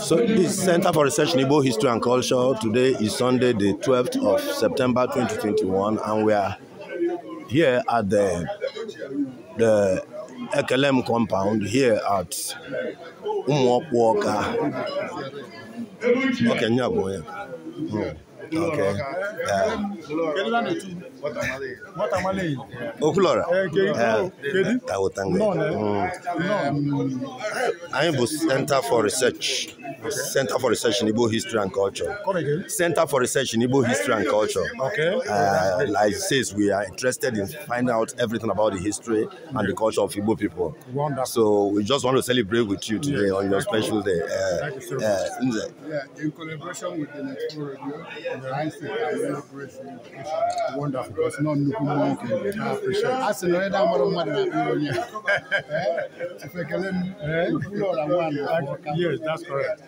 So this Center for Research in Igbo History and Culture today is Sunday the 12th of September 2021 and we are here at the the Ekelem compound here at Umuokwoka. Okay, Nyaboye. Hmm. Okay. Yeah. Okulora. Eh, eh, Tawotanga. Mm. I was enter for research. Center for Research in Igbo History and Culture. Center for Research in Igbo History and Culture. Okay. Uh, like it says, we are interested in finding out everything about the history and the culture of Igbo people. Wonderful. So we just want to celebrate with you today on your special day. Uh, uh, yeah, in collaboration with the Next Radio, and the Wonderful. It's not Nuku I appreciate it. That's another eh? eh? one of my Yes, that's correct.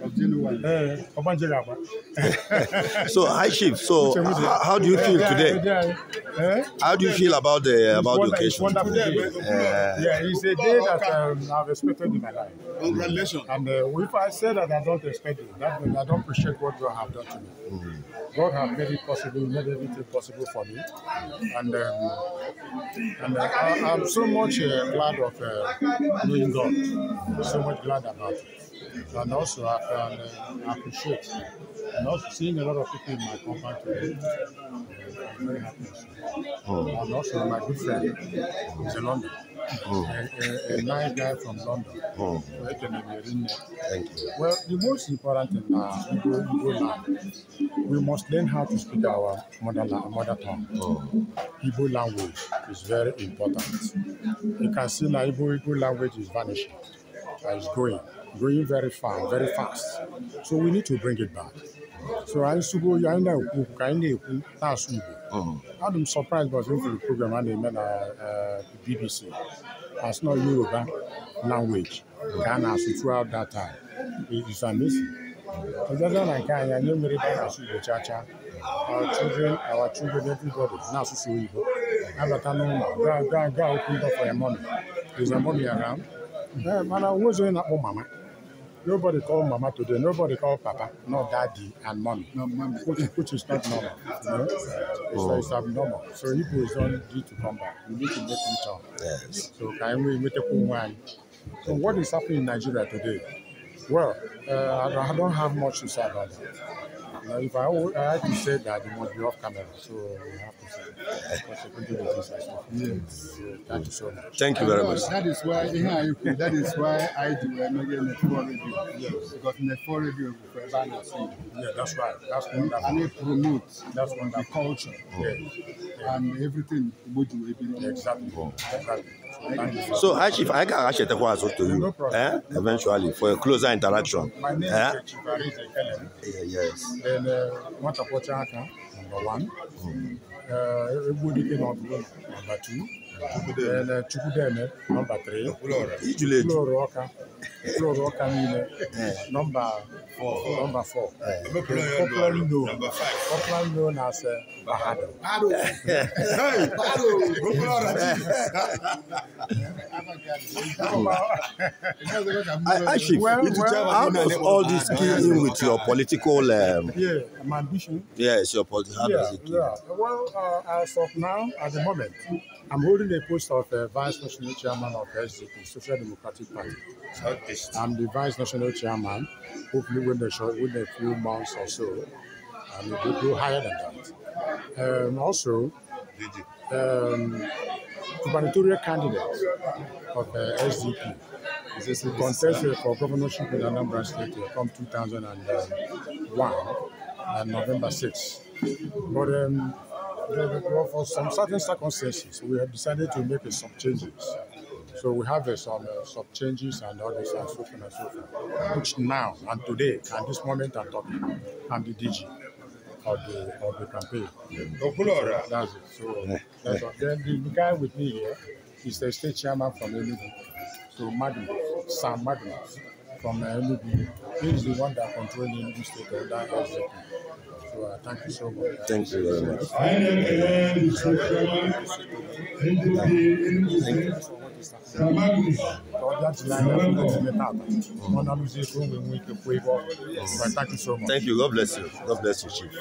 Eh, so high chief so how, how do you feel today eh? how do you feel about the about the occasion yeah it's a day that um, i've expected in my life congratulations and uh, if i say that i don't expect it that means i don't appreciate what god have done to me mm. god has made it possible made everything possible for me and um, and uh, I, i'm so much uh, glad of uh, knowing god so much glad about it and also I can uh, appreciate and also seeing a lot of people in my company. today. I'm very happy. Oh. And also my good friend is in London. Oh. A, a, a nice guy from London. Oh. can be in Thank you. Well, the most important thing now, we go, we We must learn how to speak our mother, mother tongue. Oh. language is very important. You can see that Igbo, Igbo language is vanishing. that is growing, growing very fast, very fast. So we need to bring it back. So I used to go, I know, I know, last week. I'm surprised by the program and name uh, uh BBC. has not Yoruba language. Ghana throughout that time. It's amazing. Ọjọ́jọ́ na I can anyị nwere ebe na-asụ Igbo cha cha. Our children, our children, everybody na-asụsụ Igbo. Abata n'ụlọ, gaa gaa Go, go, go! Open up for your money. There's a money around? Yeah, man, I was doing that mama. Nobody called mama today. Nobody called papa, not daddy and mommy. No, mommy. Which, which is not normal. You know? oh. it's, abnormal. So Igbo is not due to come back. We need to make him turn. Yes. So can we make a wine? So what is happening in Nigeria today? Well, uh, I don't have much to say about that. Now, if I, I had to say that, it must be off camera, so uh, we have to say that. Yes. thank you so much. Thank you very much. That is why, that is why I do a uh, mega network review. Yes. Because network review is for banner scene. Yeah, that's right. That's wonderful. Mm-hmm. And it promotes that's wonderful. the culture. Mm-hmm. Yes. And everything we do, Exactly. Exactly. Mm-hmm. So, Hashif, I can actually take what I to you no eh? eventually for a closer interaction. My name eh? is Chief Yes. Uh, ele nwachapụcha aka number one egwu dike n'ọgụgụ number two Chukudeme, uh, number three ijulu ọka Floro Camille, eh. number four, number four. Copeland no, Copeland no as eh, Bahado. Bahado, eh. hey, Bahado, Copeland. Actually, well, well, how does all this key in with your political? Um, yeah, ambition. Yes, your political. Yeah, yeah. Well, uh, as of now, at the moment. I'm holding the post of uh, Vice National Chairman of SDP, Social Democratic Party. I'm the Vice National Chairman, hopefully within, within a few months or so. And we will go higher than that. Um, also, um, gubernatorial candidate of uh, SDP is a contest um, for governorship in Anambra State from 2001 and um, uh, November sixth. But um, well, for some certain circumstances, we have decided to make some changes. So we have uh, some uh, some changes and others and so on and so forth, which now and today and this moment I'm talking, I'm the DG of the of the campaign. So that's it. So eh, eh. that's all. then the guy with me here is the state chairman from Enugu, so Magnus, Sam Magnus from Enugu. Uh, he is the one that controls Enugu State on that SJP. So uh, thank you so much. Thank you very much. I am the chairman Thank you Thank you. God bless you. God bless you, Chief.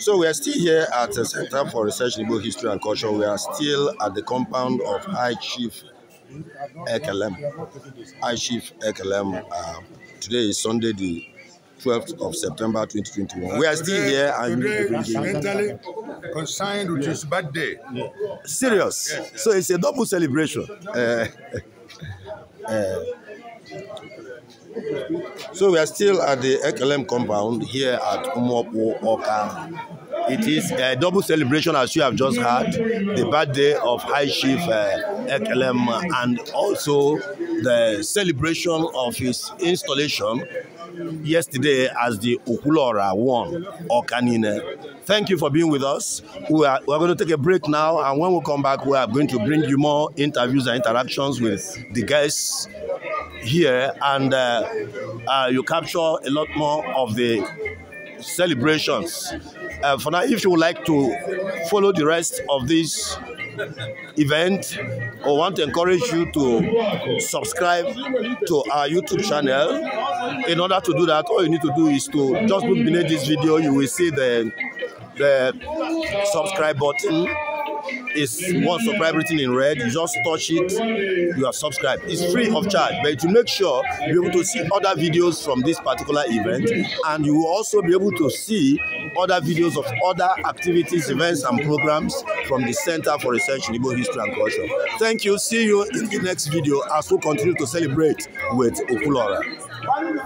So we are still here at the Center for Research in Igbo History and Culture. We are still at the compound of High Chief Ekelem, I Chief Ekelem. Uh, today is Sunday, the 12th of September 2021. We are still here today mentally consigned, with yeah. his birthday. Serious. Yes, yes. So it's a double celebration. Uh, uh, so we are still at the Ekelem compound here at Umwopo Oka It is a double celebration as you have just had the birthday of High Chief uh, Ekelem and also the celebration of his installation yesterday as the Ukulora One Okanine. Thank you for being with us. We are, we are going to take a break now and when we come back we are going to bring you more interviews and interactions with the guests here and uh, uh, you capture a lot more of the celebrations uh, for now, if you would like to follow the rest of this event or want to encourage you to subscribe to our YouTube channel, in order to do that, all you need to do is to just look beneath this video. You will see the the subscribe button is once the everything in red. You just touch it, you are subscribed. It's free of charge, but to make sure you're able to see other videos from this particular event, and you will also be able to see other videos of other activities, events, and programs from the Center for Research in Igbo History and Culture. Thank you. See you in the next video as we continue to celebrate with Okulora.